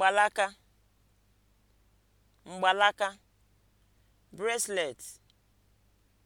mgbalaka mgbalaka bracelet